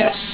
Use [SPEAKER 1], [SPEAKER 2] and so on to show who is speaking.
[SPEAKER 1] ass